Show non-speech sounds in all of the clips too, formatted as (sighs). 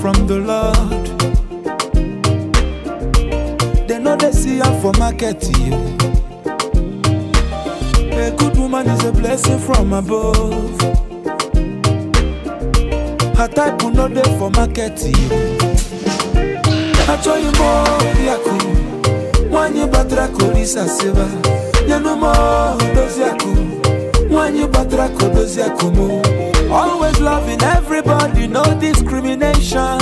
From the Lord, they know they see her for market. one is a blessing from above. Her type will not there for marketing. I tell you more, Yaku. One you batra kolisa seva. You no more, does Yaku. One you batra kodos Yakumu. Always loving everybody, no discrimination.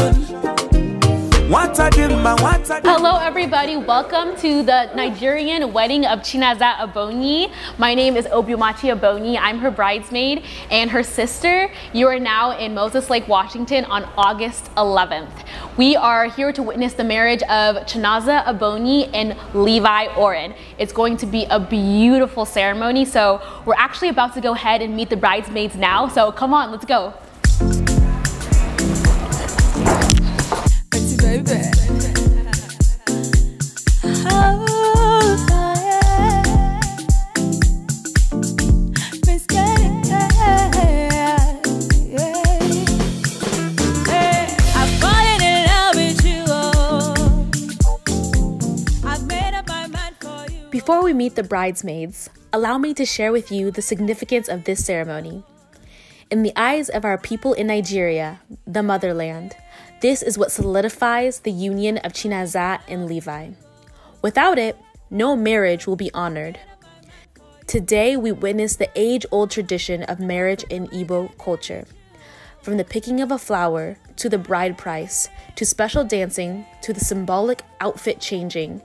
Hello everybody, welcome to the Nigerian wedding of Chinaza Abonyi. My name is Obiumachi Abonyi, I'm her bridesmaid and her sister. You are now in Moses Lake, Washington on August 11th. We are here to witness the marriage of Chinaza Abonyi and Levi Oren. It's going to be a beautiful ceremony, so we're actually about to go ahead and meet the bridesmaids now, so come on, let's go. Before we meet the bridesmaids, allow me to share with you the significance of this ceremony. In the eyes of our people in Nigeria, the motherland, this is what solidifies the union of Chinazah and Levi. Without it, no marriage will be honored. Today, we witness the age old tradition of marriage in Igbo culture. From the picking of a flower to the bride price to special dancing to the symbolic outfit changing,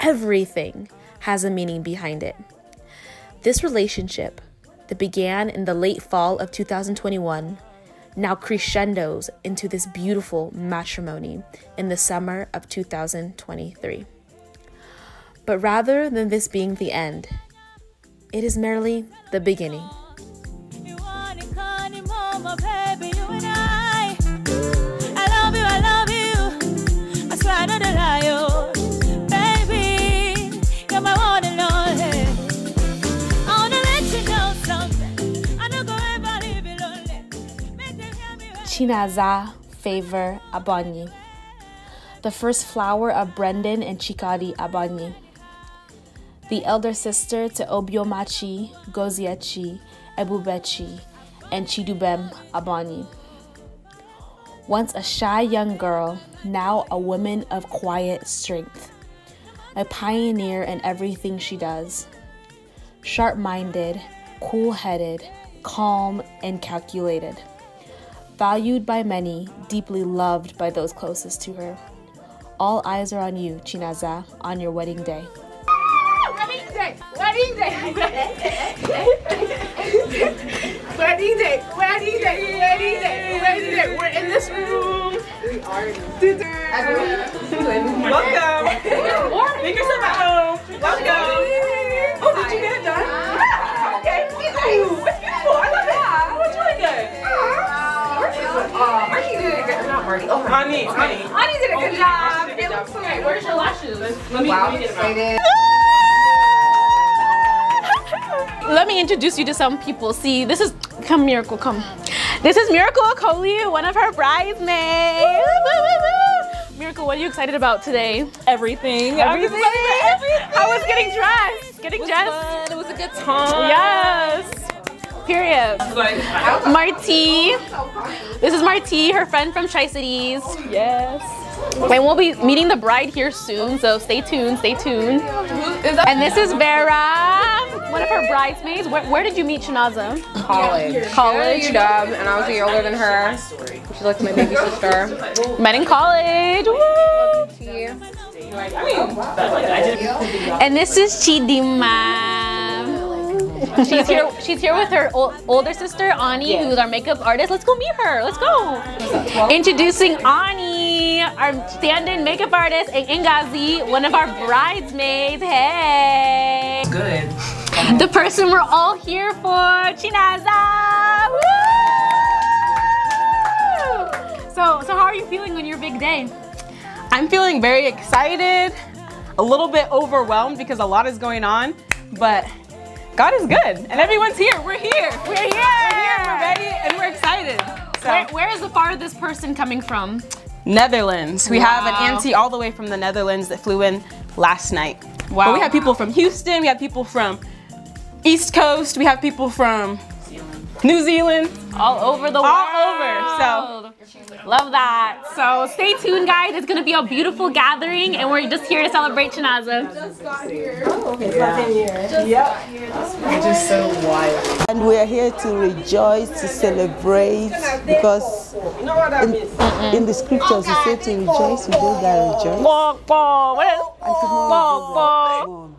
everything has a meaning behind it. This relationship, that began in the late fall of 2021, now crescendos into this beautiful matrimony in the summer of 2023. But rather than this being the end, it is merely the beginning. Chinaza favor Abanyi, the first flower of Brendan and Chikadi Abanyi, the elder sister to Obiomachi, Goziachi, Ebubechi, and Chidubem Abanyi. Once a shy young girl, now a woman of quiet strength, a pioneer in everything she does. Sharp minded, cool headed, calm, and calculated valued by many, deeply loved by those closest to her. All eyes are on you, Chinaza, on your wedding day. Wedding day! Wedding day! wedding day! Wedding day! Wedding day! Wedding day! We're in this room! We are Everyone, welcome! Make yourself at home! Welcome! Oh, did you get it done? okay! Uh, Marky did a good not Marty. Oh, honey, honey. Honey did a good oh, job. It looks so great. Where's your lashes? Let me, wow, let me get (laughs) let me introduce you to some people. See, this is, come Miracle, come. This is Miracle Okoli, one of her bridesmaids. Woo, woo, woo, Miracle, what are you excited about today? Everything. Everything. everything. I was getting dressed. Getting dressed. Fun. It was a good time. Yes. Period. Marti. This is Marti, her friend from Tri-Cities. Yes. And we'll be meeting the bride here soon, so stay tuned, stay tuned. And this is Vera, one of her bridesmaids. Where, where did you meet Shanaza? College. College. Dub, and I was a year older than her. She's like my baby sister. Met in college. Woo! And this is Chidima she's here. She's here with her older sister Ani, yes. who's our makeup artist. Let's go meet her. Let's go. Introducing Ani, our stand-in makeup artist, and Ingazi, one of our bridesmaids. Hey. good. The person we're all here for, Chinaza. Woo! So, so how are you feeling on your big day? I'm feeling very excited, a little bit overwhelmed because a lot is going on, but God is good, and everyone's here. We're here. We're here. We're here. We're ready, and we're excited. So. Where, where is the farthest person coming from? Netherlands. We wow. have an auntie all the way from the Netherlands that flew in last night. Wow. But we have people from Houston. We have people from East Coast. We have people from New Zealand. All over the world. All over. So love that. So stay tuned, guys. It's gonna be a beautiful gathering, and we're just here to celebrate Chinaza. Just got here. Oh, okay. Yeah. Just yep. got here. We're just so wild. And we are here to rejoice, to celebrate, because in, in the scriptures it says to rejoice with those that rejoice. What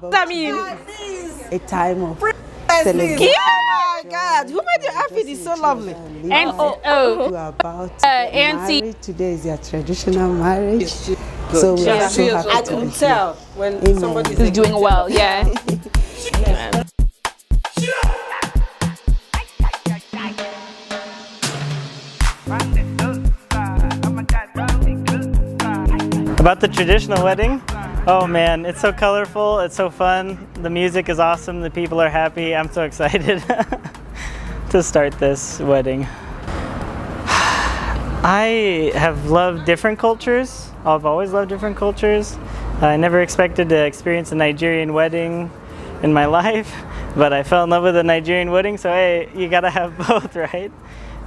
does that mean? A time of Please. Oh my God, who made your outfit is so lovely. And oh, oh. about uh, auntie. Today is your traditional marriage. So we yeah. are so happy I can tell when somebody is doing well. yeah. About the traditional wedding, Oh man, it's so colorful, it's so fun. The music is awesome, the people are happy. I'm so (laughs) excited (laughs) to start this wedding. (sighs) I have loved different cultures. I've always loved different cultures. I never expected to experience a Nigerian wedding in my (laughs) life, but I fell in love with a Nigerian wedding, so hey, you gotta have both, right?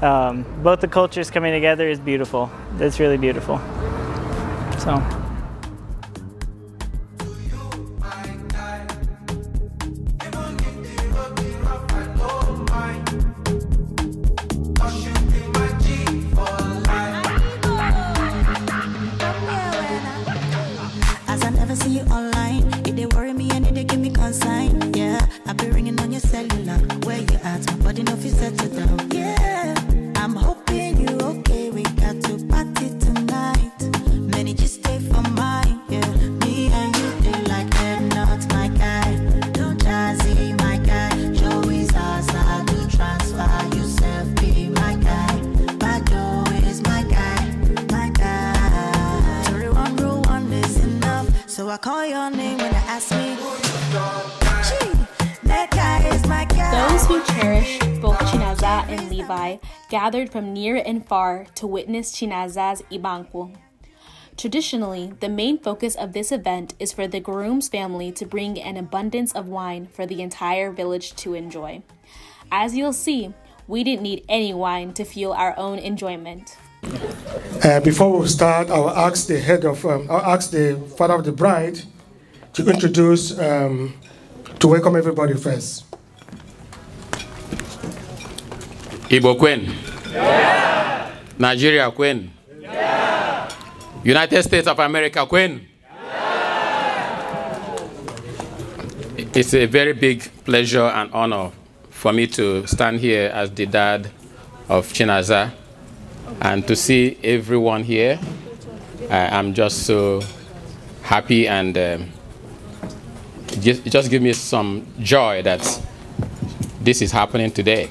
Um, both the cultures coming together is beautiful. It's really beautiful. So. heart, but enough is set to down. Yeah, I'm hoping you're okay. We got to party tonight. Many just stay for mine. Yeah, me and you they like them. not my guy. Don't jazzy, my guy. Joey's ours, I do transfer. Yourself be my guy. My Joe is my guy, my guy. Thirty-one rule one is enough, so I call your name. Those who cherished both Chinaza and Levi gathered from near and far to witness Chinaza's Ibanku. Traditionally, the main focus of this event is for the groom's family to bring an abundance of wine for the entire village to enjoy. As you'll see, we didn't need any wine to fuel our own enjoyment. Uh, before we start, I'll ask the head of, um, I'll ask the father of the bride to introduce, um, to welcome everybody first. Igbo Queen. Yeah. Nigeria Queen. Yeah. United States of America Queen. Yeah. It's a very big pleasure and honor for me to stand here as the dad of Chinaza and to see everyone here. I, am just so happy and um, just, just give me some joy that this is happening today.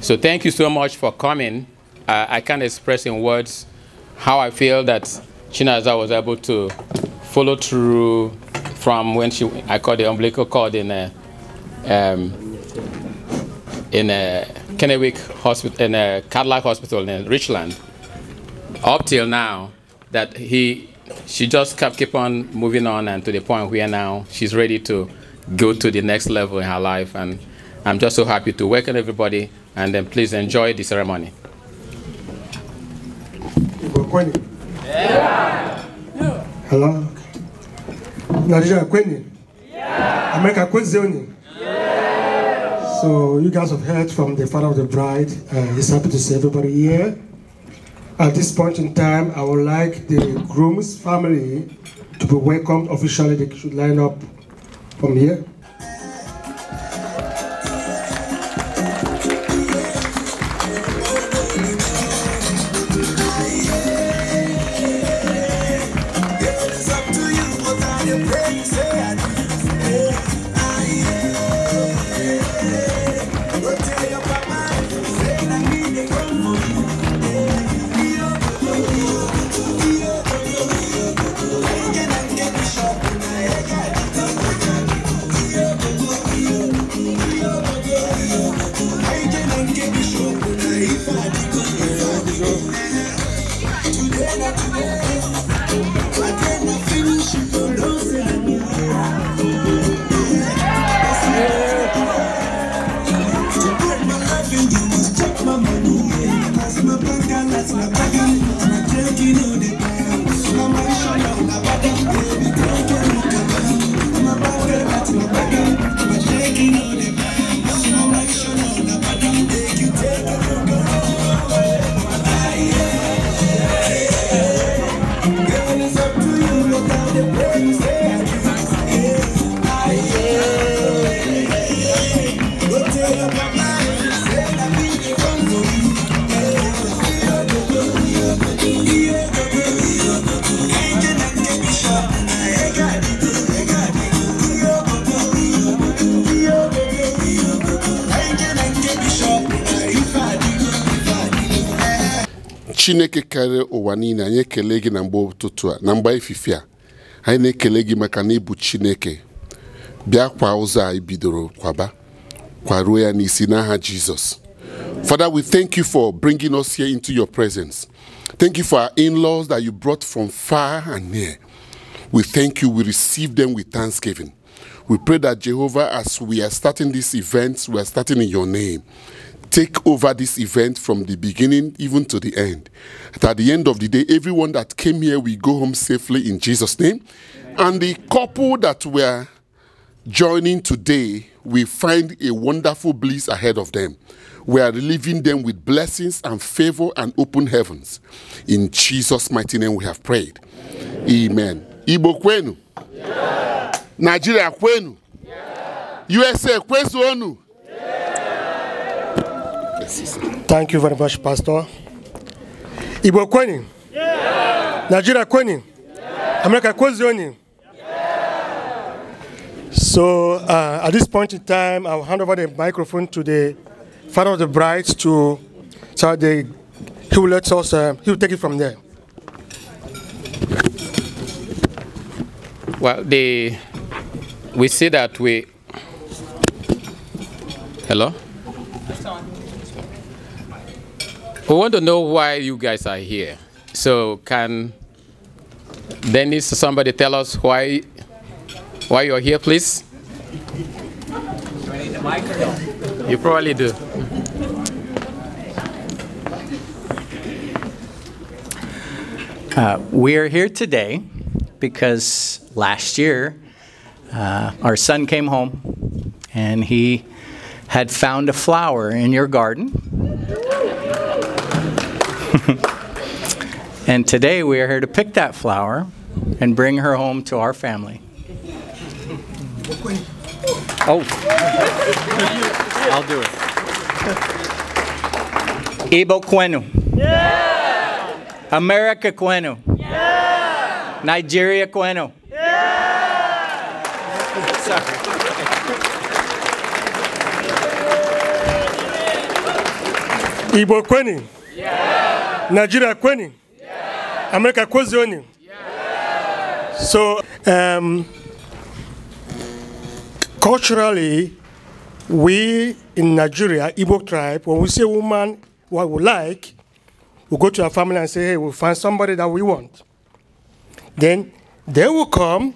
So thank you so much for coming. Uh, I can't express in words how I feel that Chinaza was able to follow through from when she I called the umbilical cord in a, um, in a Kennewick hospital in a Cadillac hospital in Richland up till now that he she just kept keep on moving on and to the point where now she's ready to go to the next level in her life and I'm just so happy to welcome everybody and then please enjoy the ceremony. Hello? Nigeria Queen? Yeah. America Queen yeah. So you guys have heard from the father of the bride. Uh, he's happy to see everybody here. At this point in time, I would like the groom's family to be welcomed officially. They should line up from here. That's my body, my drink, you know karịa ụwa niile anyị ekele gị na mgbe ụtụtụ a na mgba ifife a anyị na-ekele gị maka na ịbụ chineke bịa kwa ụzọ anyị bidoro kwaba kwaruo ya n'isi n'aha jizọs Father, we thank you for bringing us here into your presence. Thank you for our in laws that you brought from far and near. We thank you. We receive them with thanksgiving. We pray that, Jehovah, as we are starting this event, we are starting in your name take over this event from the beginning even to the end. That at the end of the day, everyone that came here will go home safely in Jesus' name. And the couple that were joining today will find a wonderful bliss ahead of them. We are leaving them with blessings and favor and open heavens. In Jesus' mighty name we have prayed. Amen. Ibo kwenu. Yeah. Nigeria kwenu. Yeah. USA kwenu. Thank you very much, Pastor. Ibo kweni? Yeah. Nigeria kweni? Yeah. America kweni? So uh, at this point in time, I'll hand over the microphone to the father of the bride to so the, he will let us uh, he will take it from there. Well, the we see that we hello. We want to know why you guys are here. So can Dennis somebody tell us why why you're here, please? Do I need the mic or no? You probably do. Uh, we are here today because last year uh, our son came home and he had found a flower in your garden (laughs) and today we are here to pick that flower and bring her home to our family. Oh, I'll do it. Ibo Kwenu. Yeah. America Kwenu. Yeah. Nigeria Kwenu. Yeah. Sorry. Ibo Kweni. Yeah. Nigeria Kweni? Yeah. America Kwezioni? Yeah. So, um, culturally, we in Nigeria, Igbo tribe, when we see a woman what we like, we go to our family and say, hey, we'll find somebody that we want. Then they will come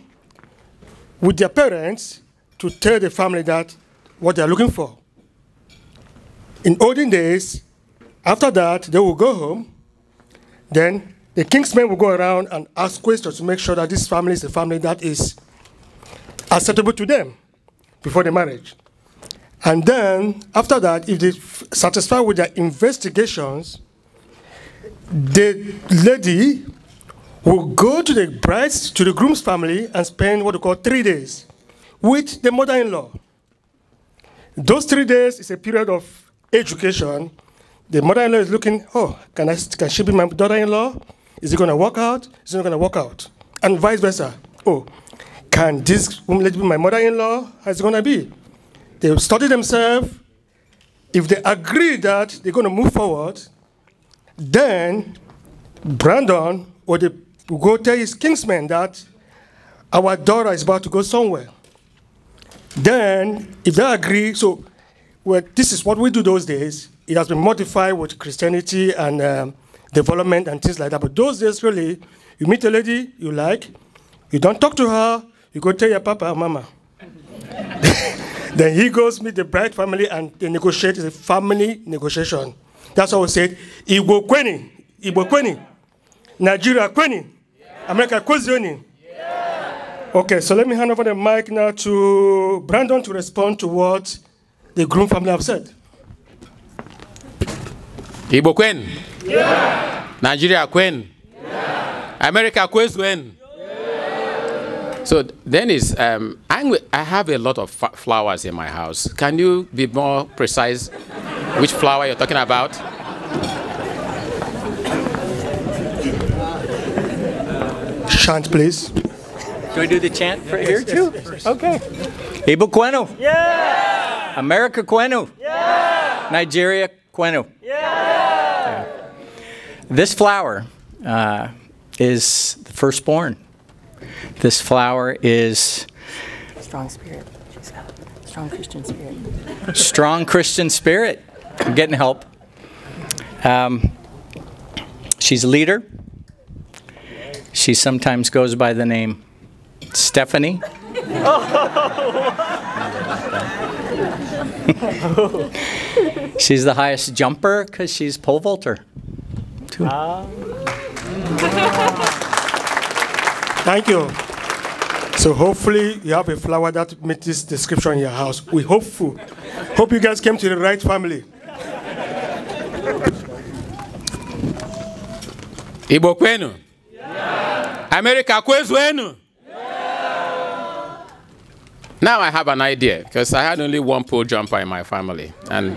with their parents to tell the family that what they're looking for. In olden days, after that, they will go home then the king's men will go around and ask questions to make sure that this family is a family that is acceptable to them before the marriage. And then, after that, if they satisfy with their investigations, the lady will go to the bride's, to the groom's family and spend what we call three days with the mother-in-law. Those three days is a period of education the mother-in-law is looking, oh, can, I, can she be my daughter-in-law? Is it going to work out? Is it not going to work out? And vice versa. Oh, can this woman be my mother-in-law? How's it going to be? They study themselves. If they agree that they're going to move forward, then Brandon or the go tell his kinsmen that our daughter is about to go somewhere. Then, if they agree, so well, this is what we do those days it has been modified with Christianity and um, development and things like that. But those days, really, you meet a lady you like, you don't talk to her, you go tell your papa mama. (laughs) then he goes meet the bride family and they negotiate. It's a family negotiation. That's how we said, Igbo Kweni, Igbo Kweni, Nigeria Kweni, America Kwezioni. Okay, so let me hand over the mic now to Brandon to respond to what the groom family have said. Igbo kwenu? Yeah. Nigeria kwenu? Yeah. America kwenu? Yeah. So then is um, i have a lot of flowers in my house. Can you be more precise which flower you're talking about? Chant, please. Can we do the chant for yeah, here too? okay. Ibu Quenu. Yeah. America Quenu. Yeah. Nigeria Quenu. Yeah. yeah. This flower uh, is the firstborn. This flower is strong spirit. She's got a strong Christian spirit. strong Christian spirit. I'm getting help. Um, she's a leader. She sometimes goes by the name Stephanie. (laughs) oh. (laughs) She's the highest jumper because she's pole vaulter. Uh. Thank you. So hopefully you have a flower that meets this description in your house. We hopeful. Hope you guys came to the right family. Igbo kwenu? Yeah. America kwezu enu? Yeah. Now I have an idea because I had only one pole jumper in my family and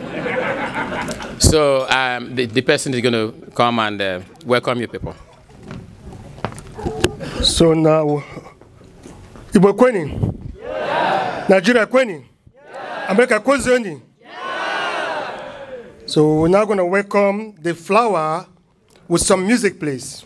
so um, the, the person is going to come and uh, welcome you people. So now, Igbo kweni? Yeah. Nigeria kweni? Yeah. America kwezioni? So we're now going to welcome the flower with some music, please.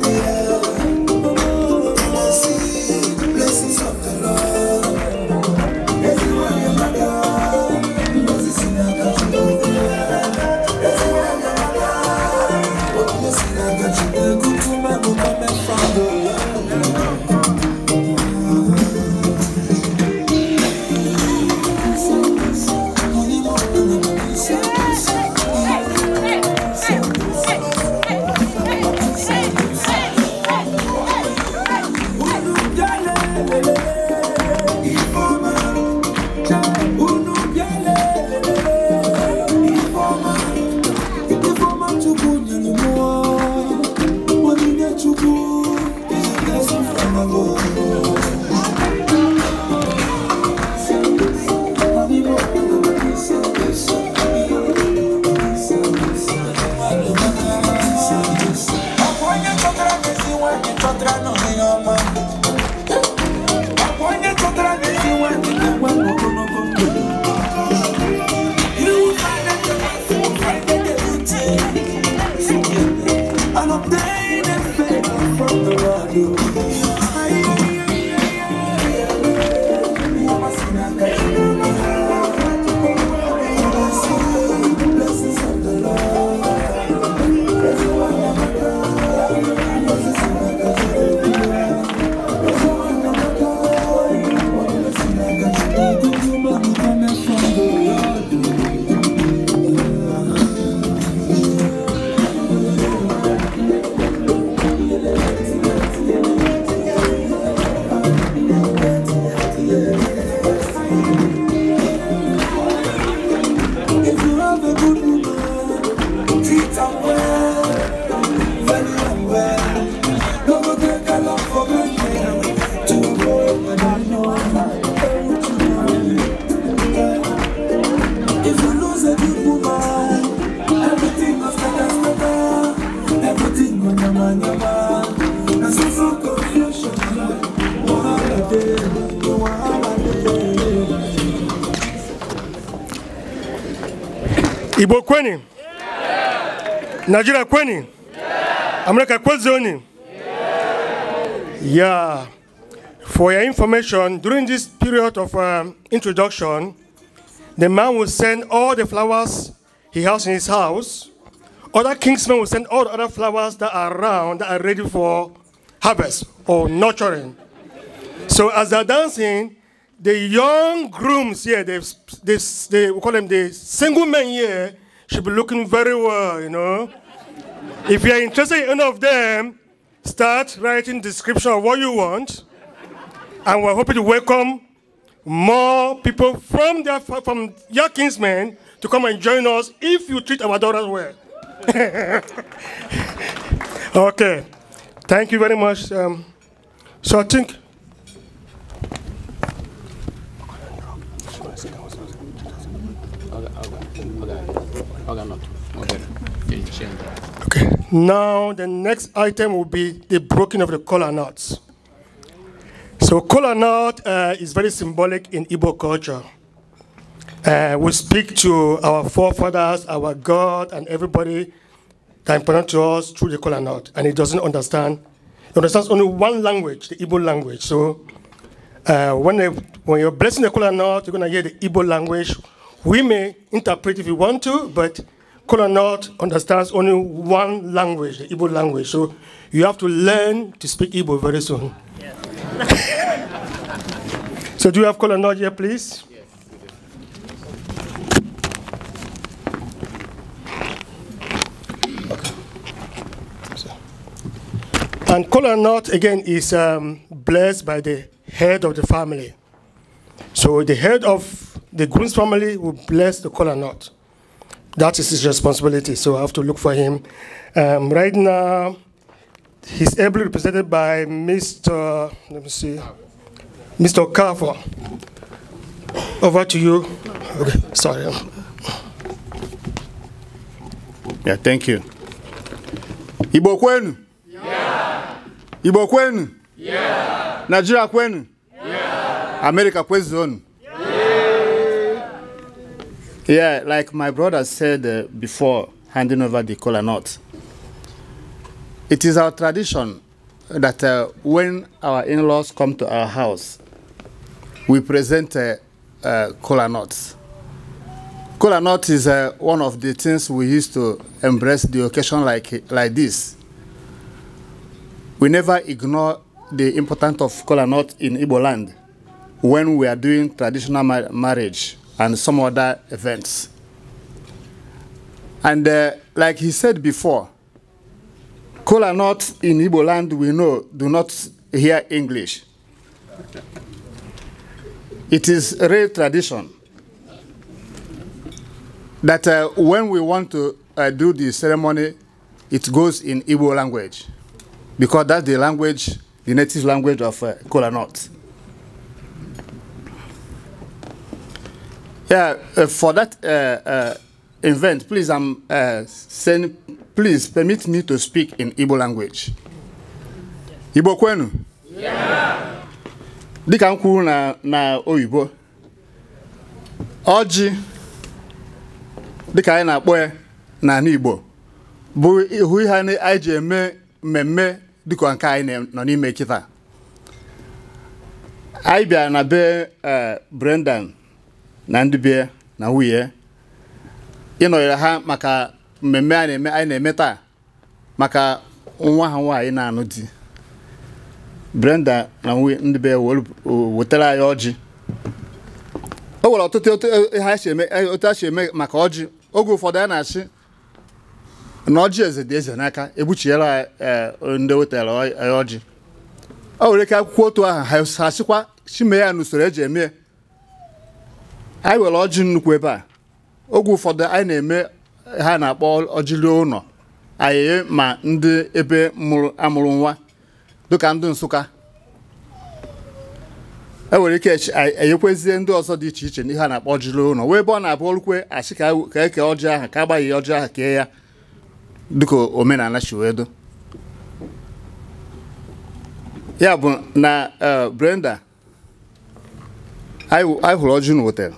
najira kweni amureka kwezoni yeah for your information during this period of um, introduction the man will send all the flowers he has in his house other kingsmen will send all the other flowers that are around that are ready for harvest or nurturing so as they're dancing the young grooms here, they, they, they, we call them the single men here, should be looking very well, you know. If you are interested in any of them, start writing description of what you want. And we're hoping to welcome more people from, their, from your kinsmen to come and join us if you treat our daughters well. okay. Thank you very much. Um, so I think. Okay, okay, okay, okay, okay, okay, okay, okay, now, the next item will be the breaking of the collar knot. So collar knot uh, is very symbolic in Igbo culture. Uh, we speak to our forefathers, our God, and everybody that important to us through the collar knot, and he doesn't understand. He understands only one language, the Igbo language. So uh, when, they, when you're blessing the collar knot, you're going to hear the Igbo language. We may interpret if you want to, but Kola North understands only one language, the Igbo language. So you have to learn to speak Igbo very soon. Yes. so do you have Kola North here, please? And Kola North, again, is um, blessed by the head of the family. So the head of the groom's family will bless the Kola North that is his responsibility, so I have to look for him. Um, right now, he's ably represented by Mr. Let me see, Mr. Carver. Over to you. Okay, sorry. Yeah, thank you. Ibo kwenu? Yeah. Ibo kwenu? Yeah. Nigeria kwenu? Yeah. America kwezonu? Yeah, like my brother said uh, before handing over the kola nut, it is our tradition that uh, when our in-laws come to our house, we present uh, uh, kola nuts. Kola nut is uh, one of the things we used to embrace the occasion like, like this. We never ignore the importance of kola nut in Igbo land when we are doing traditional marriage and some other events. And uh, like he said before, Kola not in Igbo land, we know, do not hear English. It is a real tradition that uh, when we want to uh, do the ceremony, it goes in Igbo language because that's the language, the native language of uh, Kola North. Uh, uh, for that uh, uh, event, please, I'm um, saying, please permit me to speak in Igbo language. Igbo kwenu? Yeah. Dika na na oyibo, ọjị dịka anyị na-akpọ ya n'ala Igbo bụ ihu ihe anyị ji eme mmemme dịka nke anyị nọ n'ime kita Anyị bịara na be Brendan na ndị bie na nwunye ịnọnyere ha maka mmemme anyị na-eme taa maka nwa ha nwaanyị na-anụ di Brenda na nwunye ndị bie wetara anyị ọjị o nwere ọtụtụ otu e, e, a e, si eme maka ọjị oge ụfọdụ a na-asị na ọjị eze dị eze n'aka egbuchiela ndị wetara ọjị o nwere ike akwụkwọ otu ahụ ha sịkwa chime ya n'usoro eji eme anyị were ọjị nnukwu ebe a oge ụfọdụ anyị na-eme ha na-akpọ ọjịli ụlọ anyị ma ndị ebe amụrụ nwa dịka ndị Nsụka e nwere ike enyekwezie ndị ọzọ dị iche iche n'ihe a na-akpọ ọjịli ụlọ wee ebe ọ na-abụ olukwe achị ka eke e ọjị ahụ ka agbaghị ọjị ahụ kee ya dịka omenala chiwedo ya bụ na eh, Brenda anyị hụrụ ọjị na wetara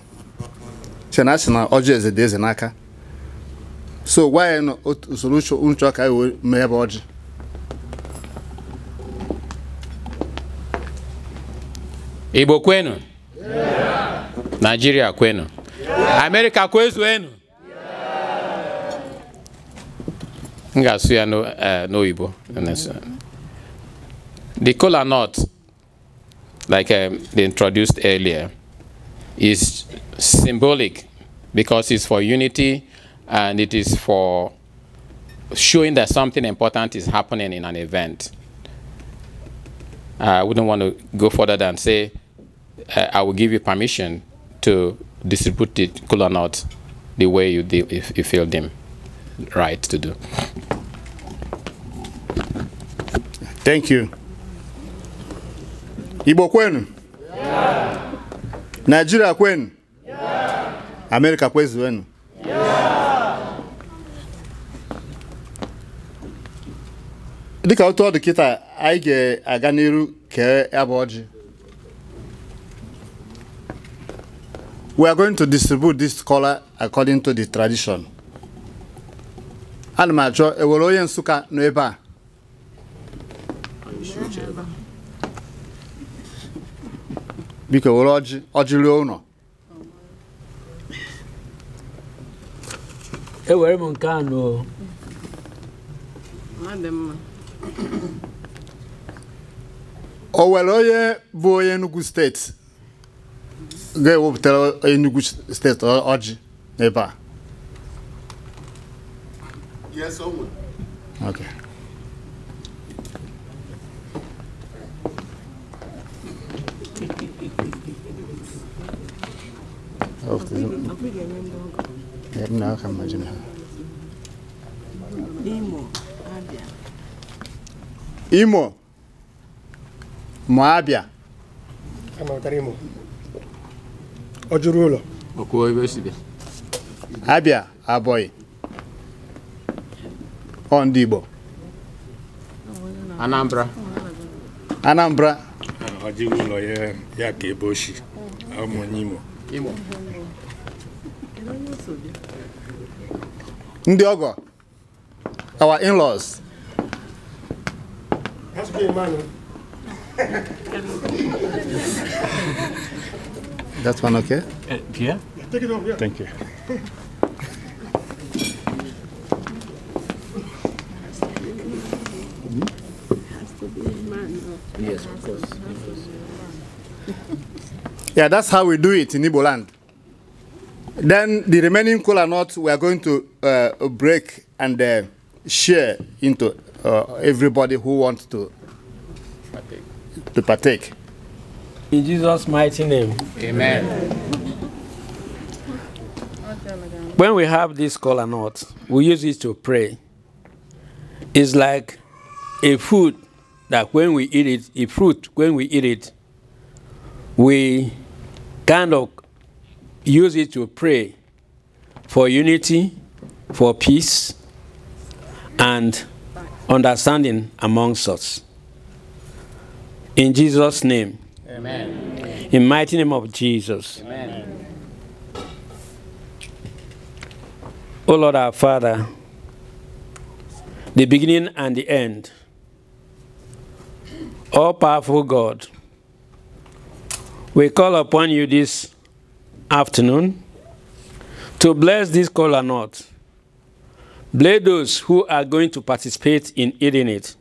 chena a na ọjị eze dị eze n'aka so gwa ya na usoro uche ka wee mee ebe ọjị igbo kwenu naijiria kwenu amerika kwezuenu m ga-asụ ya e, n'oyibo the kola nut like um, they introduced earlier is symbolic because it's for unity and it is for showing that something important is happening in an event. I wouldn't want to go further than say, uh, I will give you permission to distribute the cooler notes the way you, if you feel them right to do. Thank you. Ibo kwenu? Yeah. Nigeria kwenu? Amerika kwezi wenu. Dika otu ọ dị kịta anyị ga-aga n'iru kee ebe oji ọjị we are going to distribute this color according to the tradition ana m achọ ewere onye Nsukka nọ ebe a biko were ọjị ọjị ruo ụlọ ewere m nke anọ o nwere onye bụ onye Enugu steeti ga-ewepụtara Enugu steeti ọjị n'ebe a Yes, I would. Okay. Hopefully. na aka imo Mụ abịa ọ jụrụ ụlọ abịa abọyị ọ ndị Igbo Anambra Anambra ụlọ ya ka ebe oshi Imo ndị ọgọ our in-laws That's one okay? Uh, yeah? Take it off, yeah. Thank you. yes, of course. (laughs) yeah, that's how we do it in Igbo land. Then the remaining cola nuts we are going to uh, break and uh, share into uh, everybody who wants to partake. to partake. In Jesus' mighty name. Amen. When we have this cola nut, we use it to pray. It's like a food that when we eat it, a fruit, when we eat it, we kind of use it to pray for unity, for peace, and understanding amongst us. In Jesus' name. Amen. In mighty name of Jesus. Amen. O Lord our Father, the beginning and the end, all powerful God, we call upon you this afternoon to bless this cola nut. Bless those who are going to participate in eating it.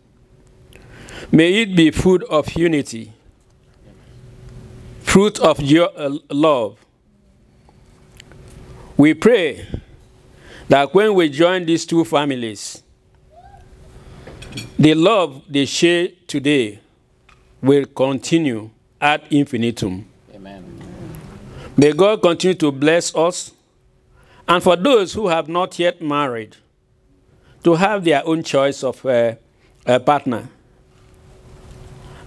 May it be food of unity, fruit of your uh, love. We pray that when we join these two families, the love they share today will continue ad infinitum. Amen. May God continue to bless us and for those who have not yet married to have their own choice of uh, a partner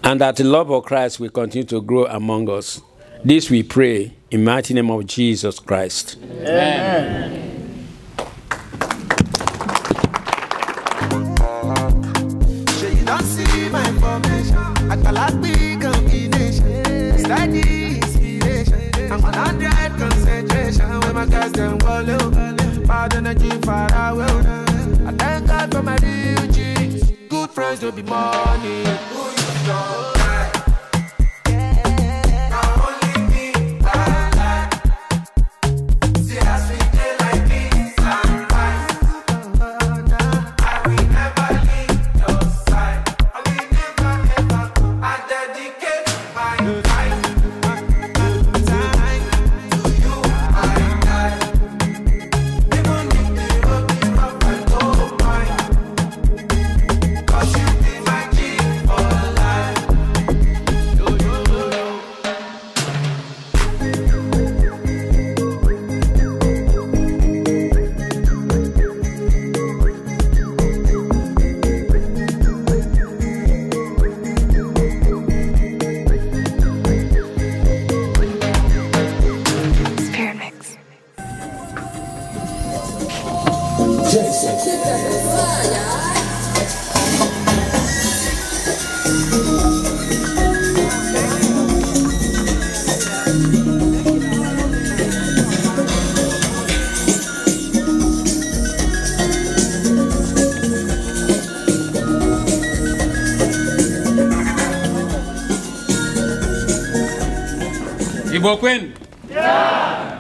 and that the love of Christ will continue to grow among us. This we pray in the mighty name of Jesus Christ. Amen. Amen. I nation when my guys them wallow. Bad energy far away. I thank God for my real Good friends don't be money. kwenu? Yeah.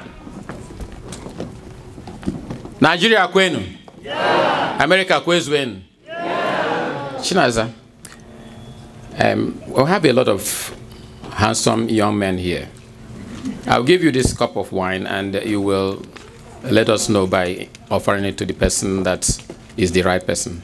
Nigeria kwenu? Yeah. America kwezu wenu? Yeah. Chinaza, um, we we'll have a lot of handsome young men here. I'll give you this cup of wine and you will let us know by offering it to the person that is the right person.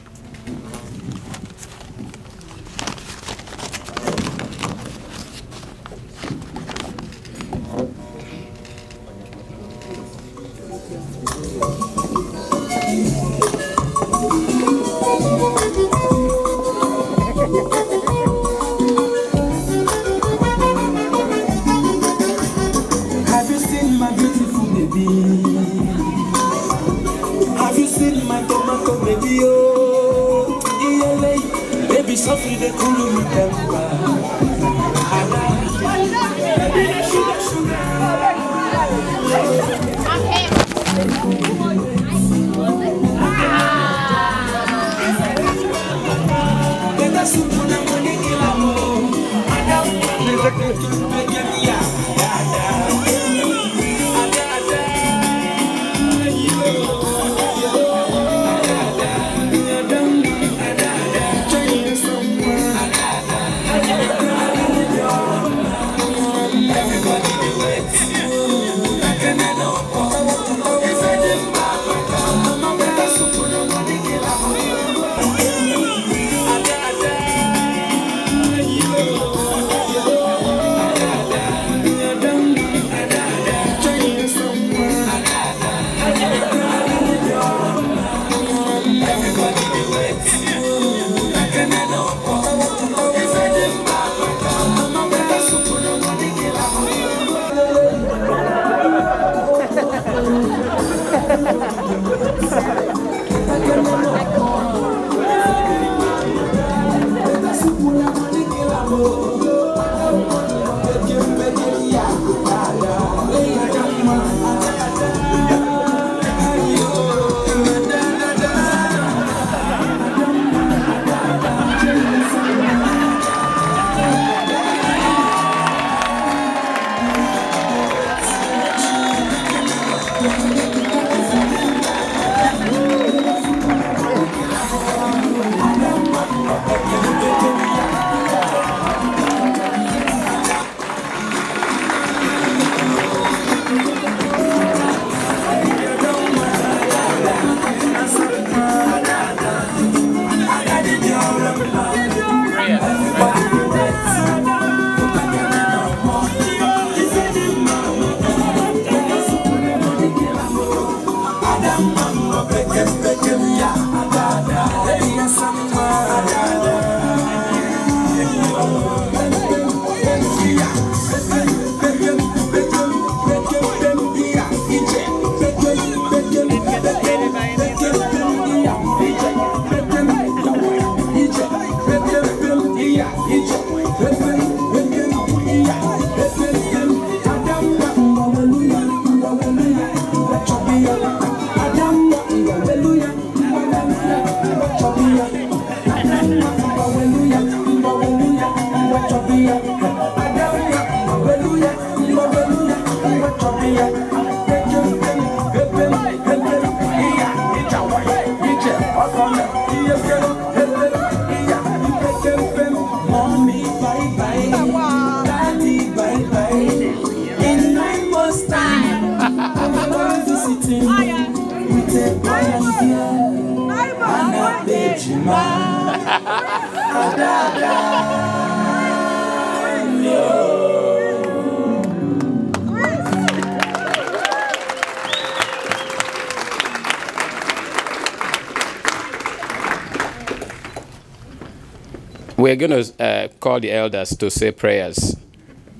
all the elders to say prayers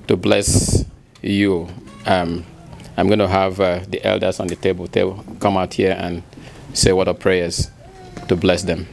to bless you. Um, I'm going to have uh, the elders on the table, table come out here and say what are prayers to bless them.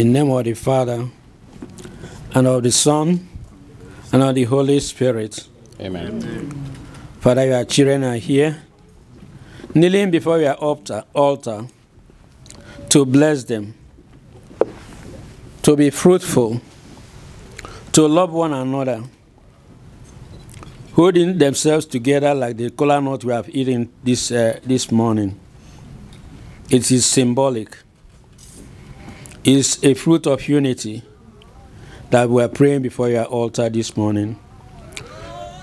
In name of the Father, and of the Son, and of the Holy Spirit. Amen. Amen. Father, your children are here, kneeling before your altar, altar to bless them, to be fruitful, to love one another, holding themselves together like the cola nut we have eaten this, uh, this morning. It is symbolic is a fruit of unity that we're praying before your altar this morning.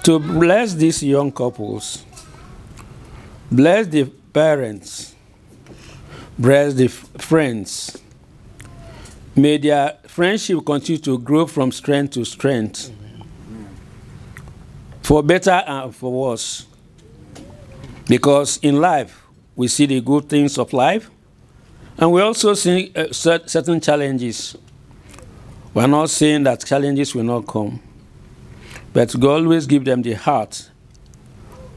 To bless these young couples, bless the parents, bless the friends. May their friendship continue to grow from strength to strength, for better and for worse. Because in life, we see the good things of life, and we also see uh, certain challenges. We are not saying that challenges will not come, but God always give them the heart,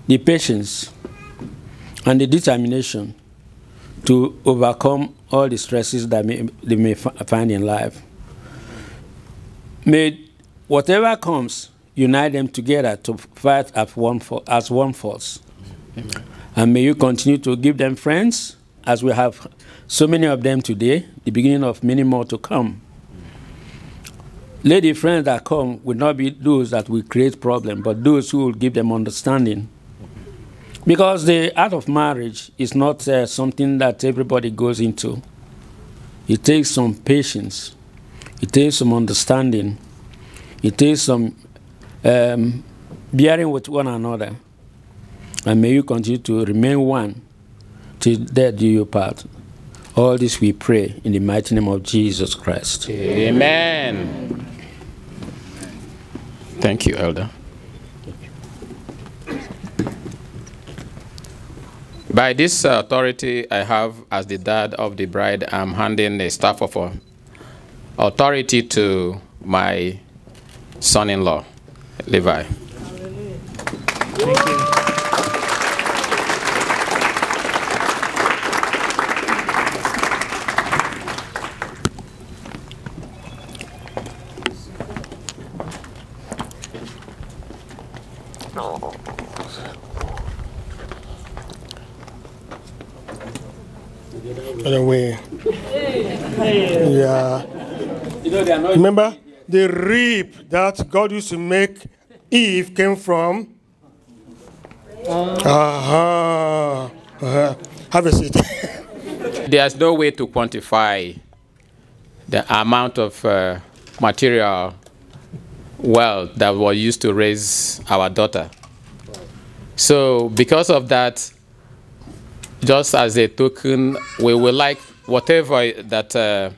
the patience, and the determination to overcome all the stresses that may, they may find in life. May whatever comes unite them together to fight as one, for, as one force. Amen. And may you continue to give them friends as we have so many of them today, the beginning of many more to come. Lady friends that come will not be those that will create problems, but those who will give them understanding. Because the art of marriage is not uh, something that everybody goes into. It takes some patience. It takes some understanding. It takes some um, bearing with one another. And may you continue to remain one till death do you part. All this we pray in the mighty name of Jesus Christ. Amen. Thank you, Elder. By this authority I have as the dad of the bride, I'm handing the staff of authority to my son-in-law, Levi. Thank you. And way. yeah. Remember the reap that God used to make Eve came from? Uh-huh. Uh-huh. uh-huh. Have a seat. (laughs) There's no way to quantify the amount of uh, material well that were used to raise our daughter. So because of that, just as a token, we would like whatever that uh,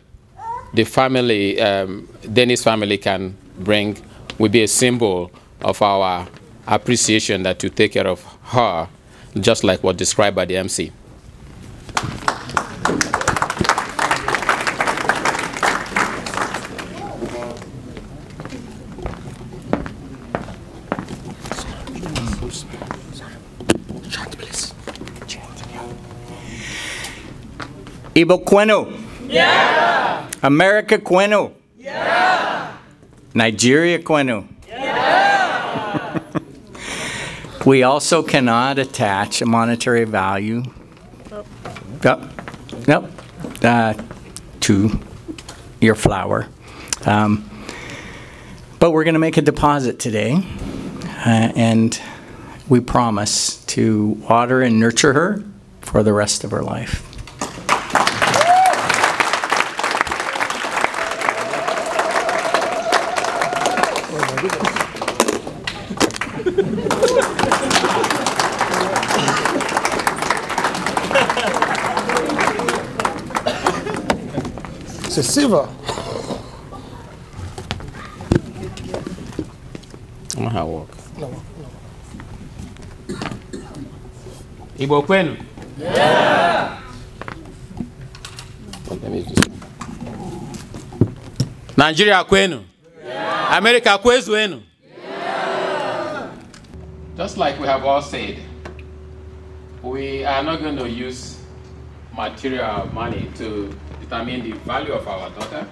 the family, um, Dennis family can bring will be a symbol of our appreciation that you take care of her, just like what described by the MC. Ibo Quenu. Yeah. America Quenu. Yeah. Nigeria Quenu. Yeah. (laughs) we also cannot attach a monetary value. Oh. Yep. Yep. Uh, to your flower. Um, but we're going to make a deposit today, uh, and we promise to water and nurture her for the rest of her life. It's a I'm excesiva. Vamos No. Walker. Igbo kwenu? Yeah. Nigeria kwenu? Yeah. America kwezwenu? Yeah. Just like we have all said, we are not going to use material uh, money to determine the value of our daughter.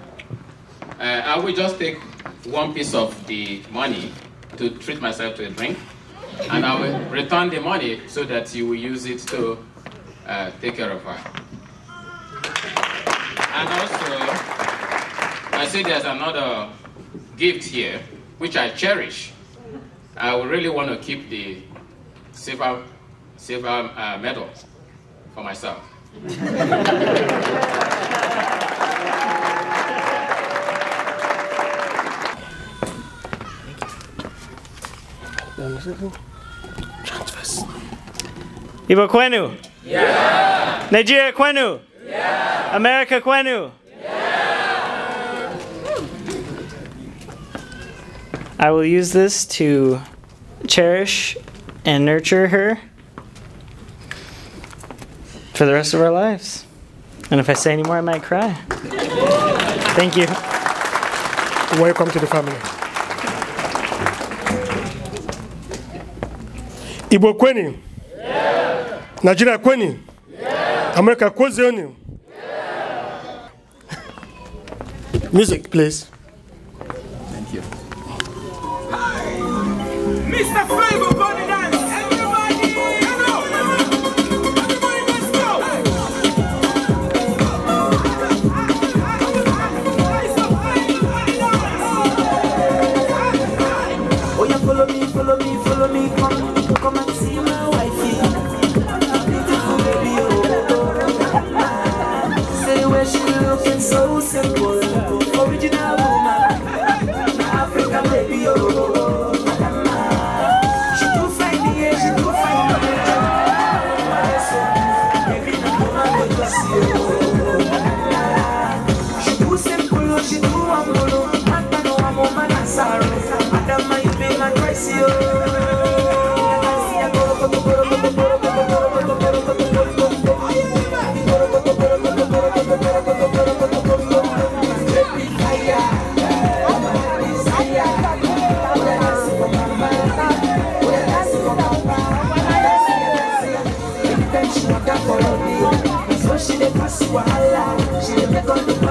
Uh, I will just take one piece of the money to treat myself to a drink, and I will return the money so that you will use it to uh, take care of her. And also, I see there's another gift here, which I cherish. I really want to keep the silver, silver uh, medal for myself. Ibo Kwenu? Yeah. Nigeria Kwenu? Yeah. America Kwenu? Yeah. I will use this to cherish and nurture her for the rest of our lives. And if I say any more, I might cry. Thank you. Welcome to the family. Igbo kweni? Yeah. Nigeria kweni? Yeah. America kwezioni? Yeah. Music, please. Thank you. Mr. Flavor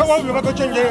akwai wani lura ta canje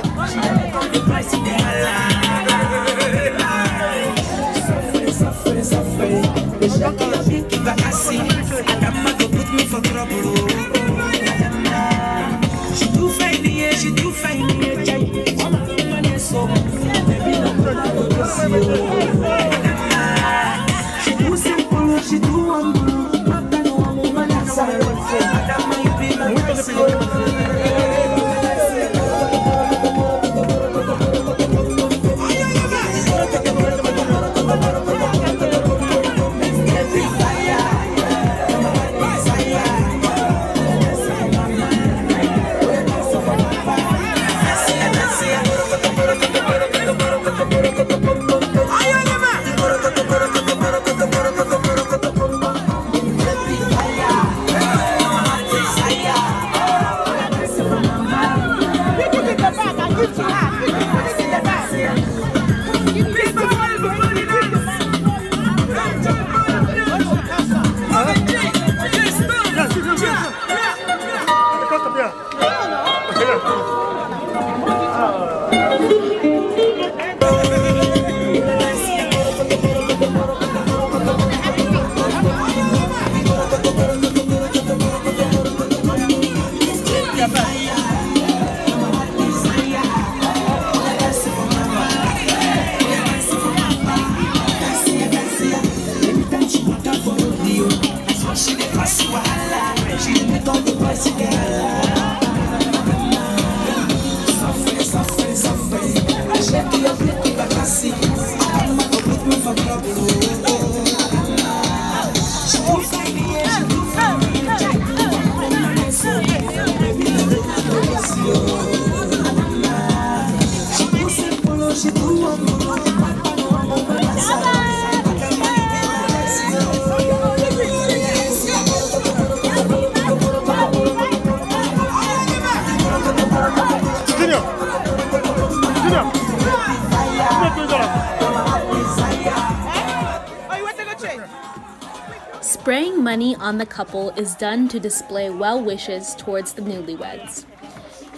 on the couple is done to display well wishes towards the newlyweds.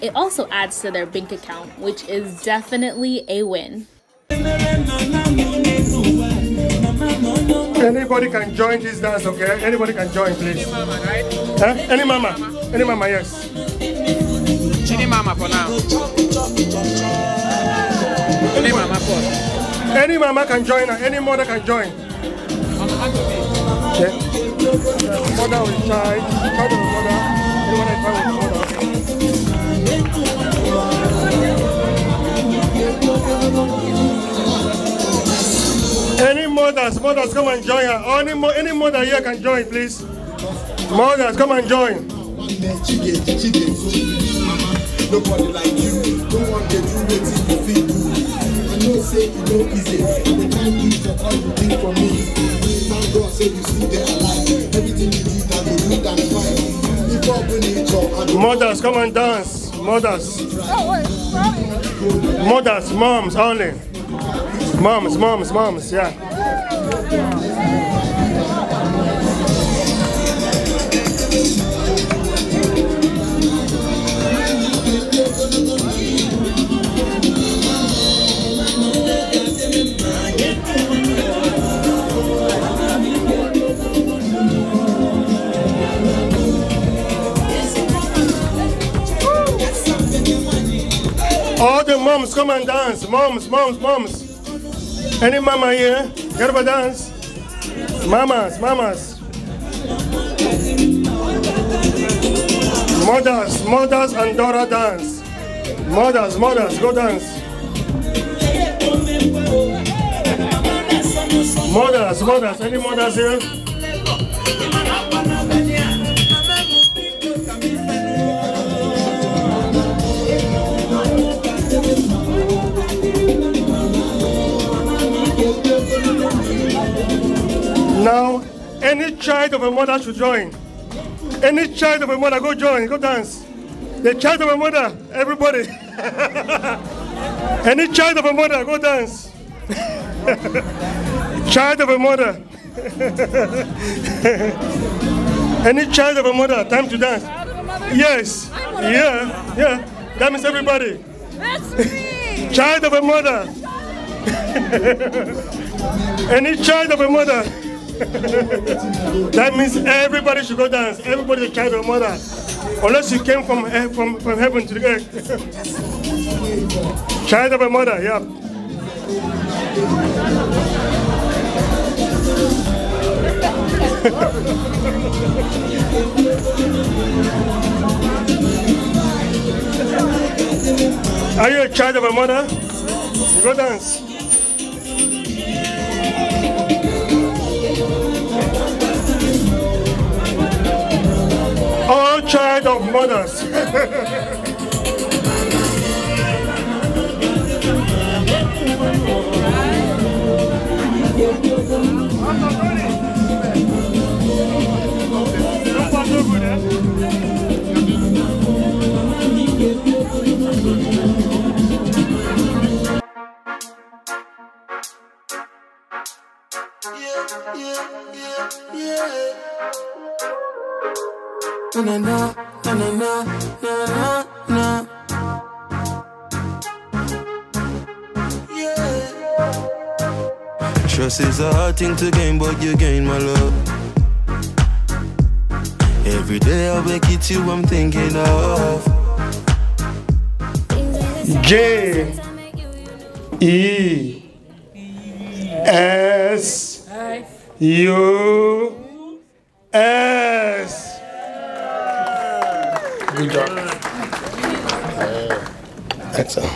It also adds to their bank account, which is definitely a win. Anybody can join this dance, okay? Anybody can join, please. Any mama, right? Huh? Any mama. Any mama, yes. Any mama for now. Any mama for. Any mama can join, any mother can join. Mother mother, with mother. Any mothers, mothers come and join her. any, mo any mother here can join, please. Mothers, come and join. Nobody like you. do you feel know say easy all you for me thank god say you still alive everything you did and fine if you mothers come and dance mothers mothers moms only moms moms moms yeah. All the moms, come and dance. Moms, moms, moms. Any mama here? Get up and dance. Mamas, mamas. Mothers, mothers and daughter dance. Mothers, mothers, go dance. Mothers, mothers, any mothers here? Now, any child of a mother should join. Any child of a mother, go join, go dance. The child of a mother, everybody. (laughs) any child of a mother, go dance. (laughs) child of a mother. (laughs) any child of a mother, time to dance. Yes. Yeah, yeah. That means everybody. Child of a mother. Any child of a mother that means everybody should go dance. Everybody, a child of mother. Unless you came from, from, from heaven to the earth. child of a mother, yeah. (laughs) Are you a child of a mother? You go dance. all child of mothers. yeah, yeah, yeah, yeah na na na na na na na na Trust is a hard thing to gain, but you gain my love. Every day I wake it you, I'm thinking of. J E S U S. Good job. Excellent.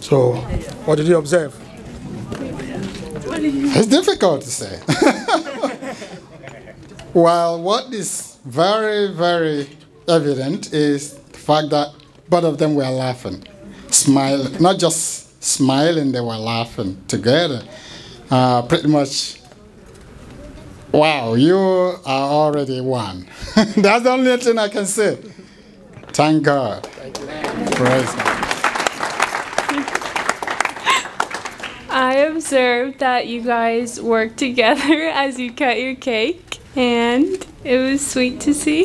So, what did you observe? It's difficult to say. (laughs) well, what is very, very evident is the fact that both of them were laughing, smiling, not just smiling, they were laughing together. Uh, pretty much, wow, you are already one. (laughs) That's the only thing I can say. Thank God. Thank I observed that you guys worked together (laughs) as you cut your cake, and it was sweet to see. (laughs)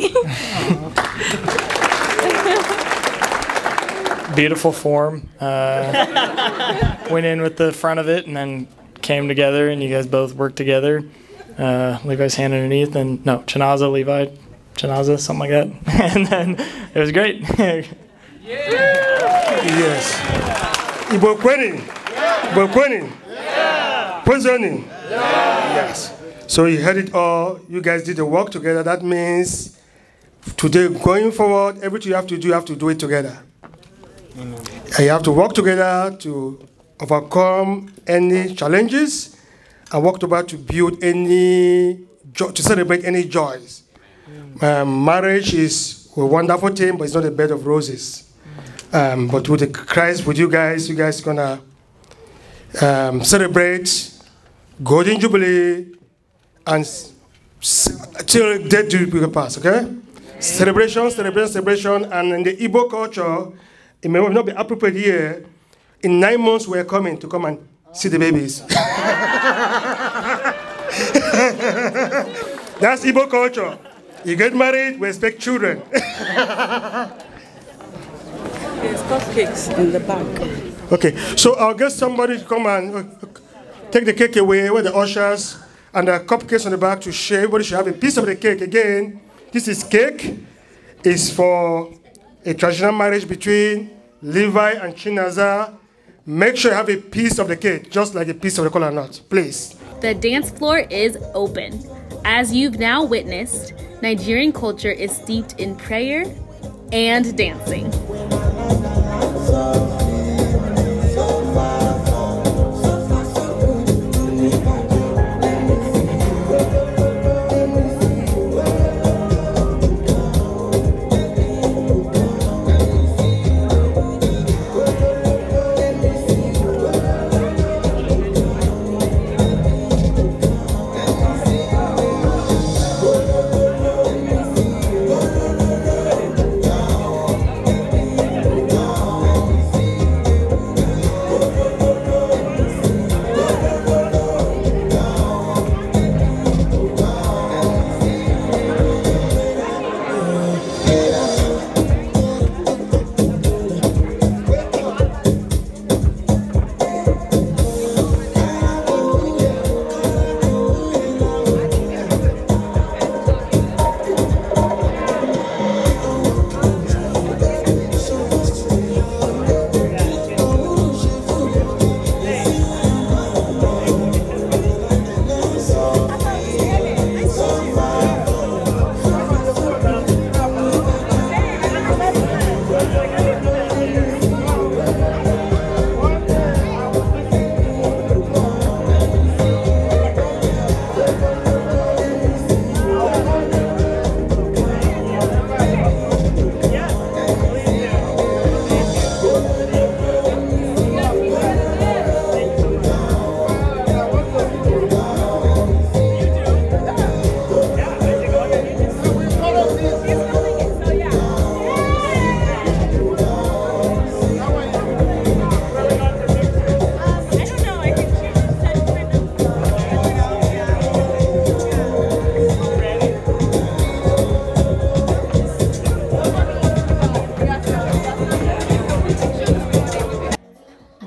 Beautiful form. Uh, went in with the front of it and then came together, and you guys both worked together. Uh, Levi's hand underneath, and no, Chinaza, Levi, janaza, something like that. (laughs) and then it was great. (laughs) yeah. Yes. We're Ibokweni. Yeah. winning. Yeah. Poisoning. Yeah. Yes. So you heard it all. You guys did the work together. That means today, going forward, everything you have to do, you have to do it together. Mm -hmm. you have to work together to overcome any challenges and work together to build any, to celebrate any joys. Um, marriage is a wonderful thing, but it's not a bed of roses. Um, but with the Christ, with you guys, you guys gonna um, celebrate Golden Jubilee and till death do you pass, okay? Celebration, celebration, celebration, and in the Igbo culture, it may not be appropriate here. In nine months, we're coming to come and see the babies. (laughs) That's Igbo culture. You get married, we expect children. (laughs) There's cupcakes in the back. Okay, so I'll get somebody to come and uh, take the cake away with the ushers and the cupcakes on the back to share. Everybody should have a piece of the cake. Again, this is cake. It's for a traditional marriage between Levi and Chinaza Make sure you have a piece of the cake, just like a piece of the coconut, nut, please. The dance floor is open. As you've now witnessed, Nigerian culture is steeped in prayer and dancing.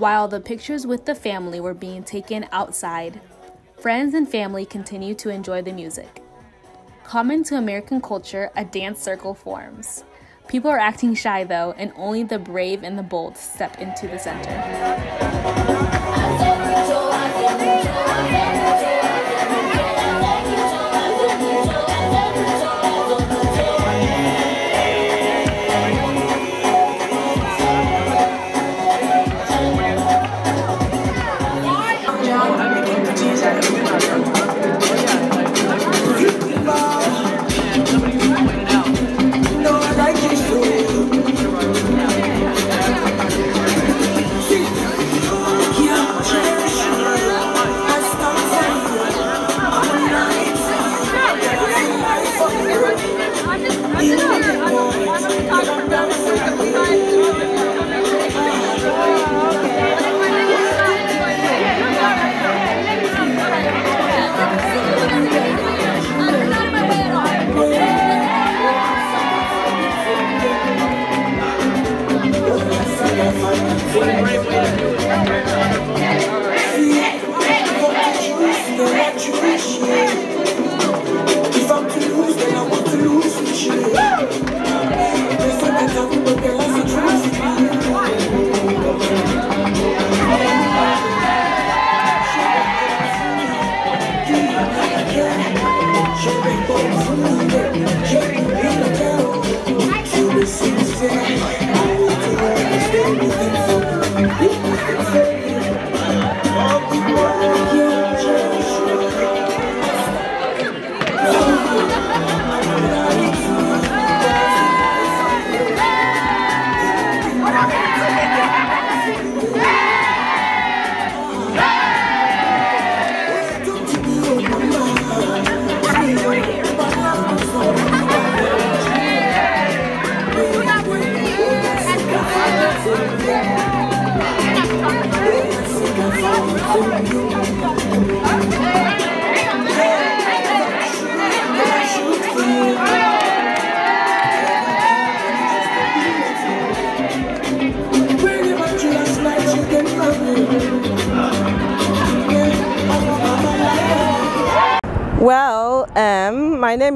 while the pictures with the family were being taken outside. Friends and family continued to enjoy the music. Common to American culture, a dance circle forms. People are acting shy though, and only the brave and the bold step into the center.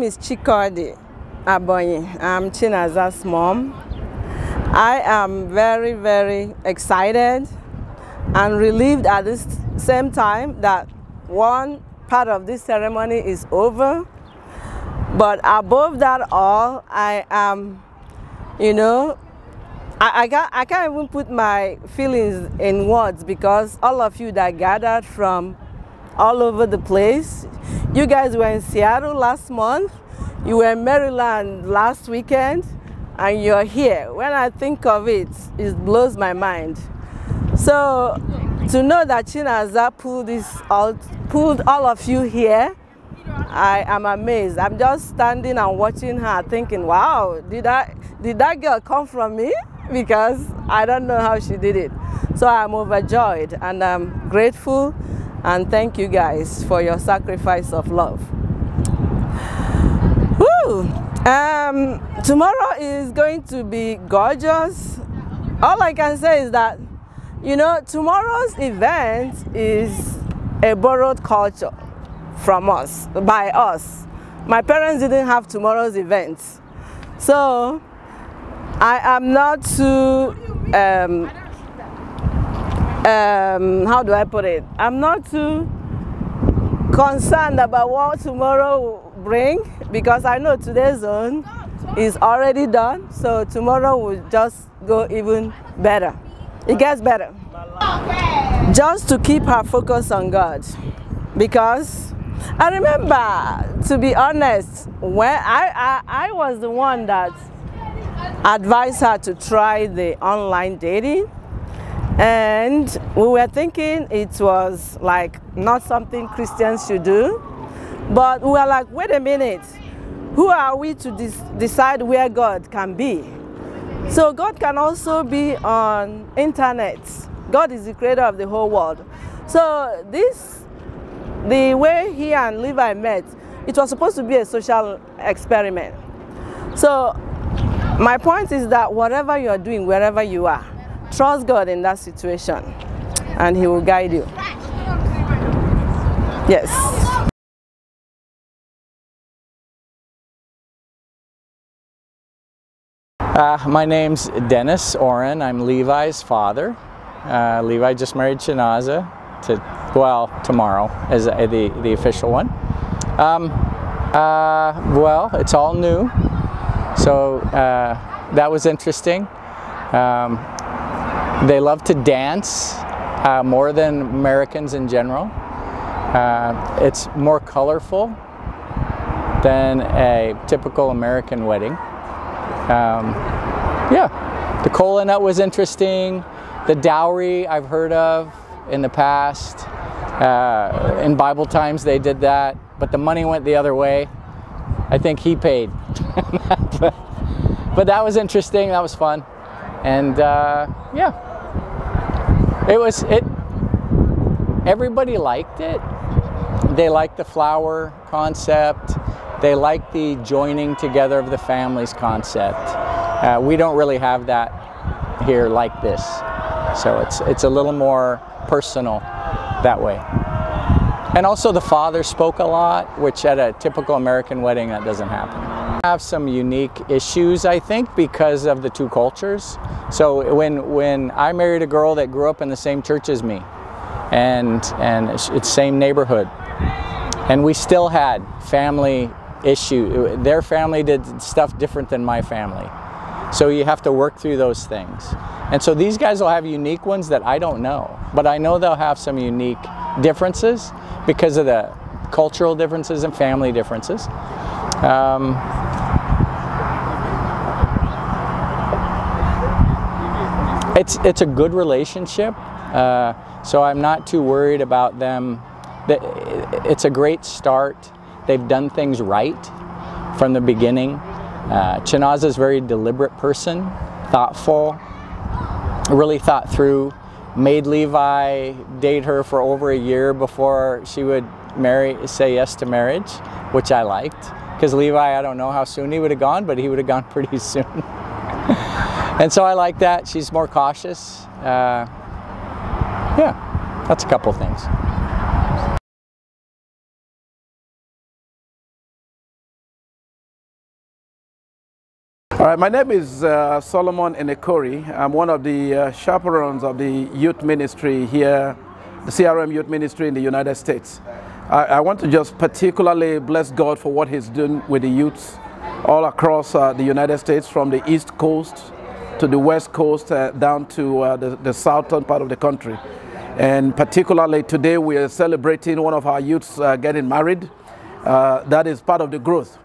is Chikodi Abonyi. I'm Chinaza's mom. I am very, very excited and relieved at the same time that one part of this ceremony is over. But above that all, I am, you know, I, I, can't, I can't even put my feelings in words because all of you that gathered from all over the place. You guys were in Seattle last month, you were in Maryland last weekend, and you're here. When I think of it, it blows my mind. So to know that Chinaza pulled this all, pulled all of you here, I am amazed. I'm just standing and watching her, thinking, "Wow, did that did that girl come from me?" Because I don't know how she did it. So I'm overjoyed and I'm grateful and thank you guys for your sacrifice of love. Woo! Um, tomorrow is going to be gorgeous. All I can say is that, you know, tomorrow's event is a borrowed culture from us, by us. My parents didn't have tomorrow's event. So I am not too um, um, how do I put it? I'm not too concerned about what tomorrow will bring because I know today's zone is already done. So tomorrow will just go even better. It gets better. Just to keep her focus on God because I remember, to be honest, when I, I, I was the one that advised her to try the online dating and we were thinking it was like not something Christians should do. But we were like, wait a minute, who are we to decide where God can be? So God can also be on internet. God is the creator of the whole world. So this, the way he and Levi met, it was supposed to be a social experiment. So my point is that whatever you are doing, wherever you are, Trust God in that situation and He will guide you. Yes. Uh, my name's Dennis Oren. I'm Levi's father. Uh, Levi just married Chinaza to, well, tomorrow is the, the official one. Um, uh, well, it's all new. So uh, that was interesting. Um, they love to dance uh, more than Americans in general. Uh, it's more colorful than a typical American wedding. Um, yeah, the cola nut was interesting. The dowry I've heard of in the past. Uh, in Bible times they did that, but the money went the other way. I think he paid. (laughs) but, but, that was interesting. That was fun. And uh, yeah. It was it. Everybody liked it. They liked the flower concept. They liked the joining together of the families concept. Uh, we don't really have that here like this, so it's it's a little more personal that way. And also the father spoke a lot, which at a typical American wedding that doesn't happen have some unique issues, I think, because of the two cultures. So when when I married a girl that grew up in the same church as me, and and it's same neighborhood, and we still had family issue. Their family did stuff different than my family, so you have to work through those things. And so these guys will have unique ones that I don't know, but I know they'll have some unique differences because of the cultural differences and family differences. Um, it's it's a good relationship. Uh, so I'm not too worried about them. It's a great start. They've done things right from the beginning. Uh, is a very deliberate person, thoughtful, really thought through. Made Levi date her for over a year before she would marry, say yes to marriage, which I liked. Because Levi, I don't know how soon he would have gone, but he would have gone (laughs) pretty soon. And so I like that. She's more cautious. Uh, yeah, that's a couple things. All right, my name is uh, Solomon Enekori. I'm one of the uh, chaperones of the youth ministry here, the CRM youth ministry in the United States. I, I want to just particularly bless God for what He's doing with the youths all across uh, the United States from the East Coast to the west coast uh, down to uh, the, the, southern part of the country. And particularly today, we are celebrating one of our youths uh, getting married. Uh, that is part of the growth.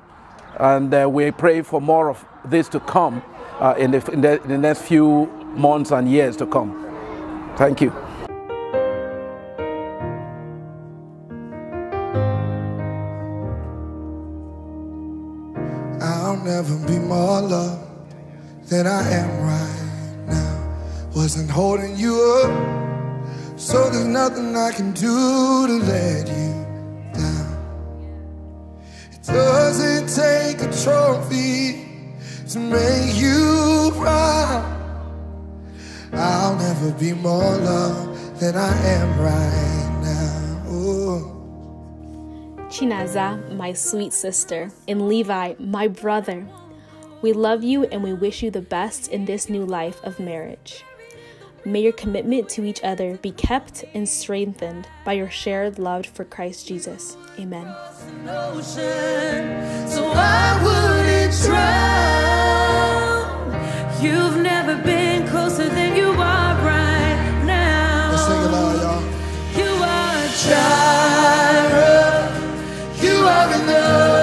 And uh, we pray for more of this to come uh, in the, in, the, in the next few months and years to come. Thank you. I'll never be more loved than I am right now. Wasn't holding you up, so there's nothing I can do to let you down. It doesn't take a trophy to make you proud. I'll never be more loved than I am right now. Ooh. Chinaza, my sweet sister, and Levi, my brother, we love you and we wish you the best in this new life of marriage. May your commitment to each other be kept and strengthened by your shared love for Christ Jesus. Amen. You've never been closer than you are right now. you You are enough.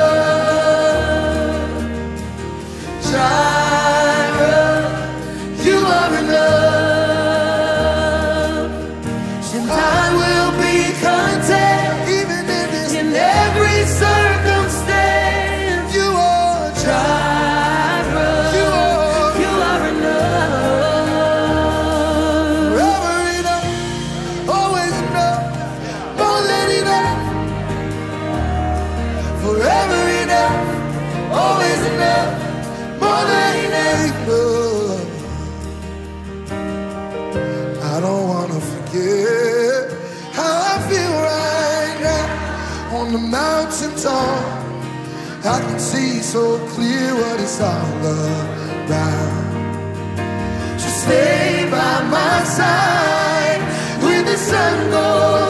it's all about. So stay by my side when the sun goes.